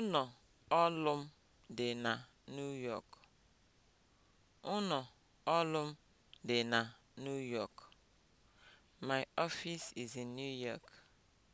Ụnọ ọlụ m dị na New York. na New York. My office is in New York.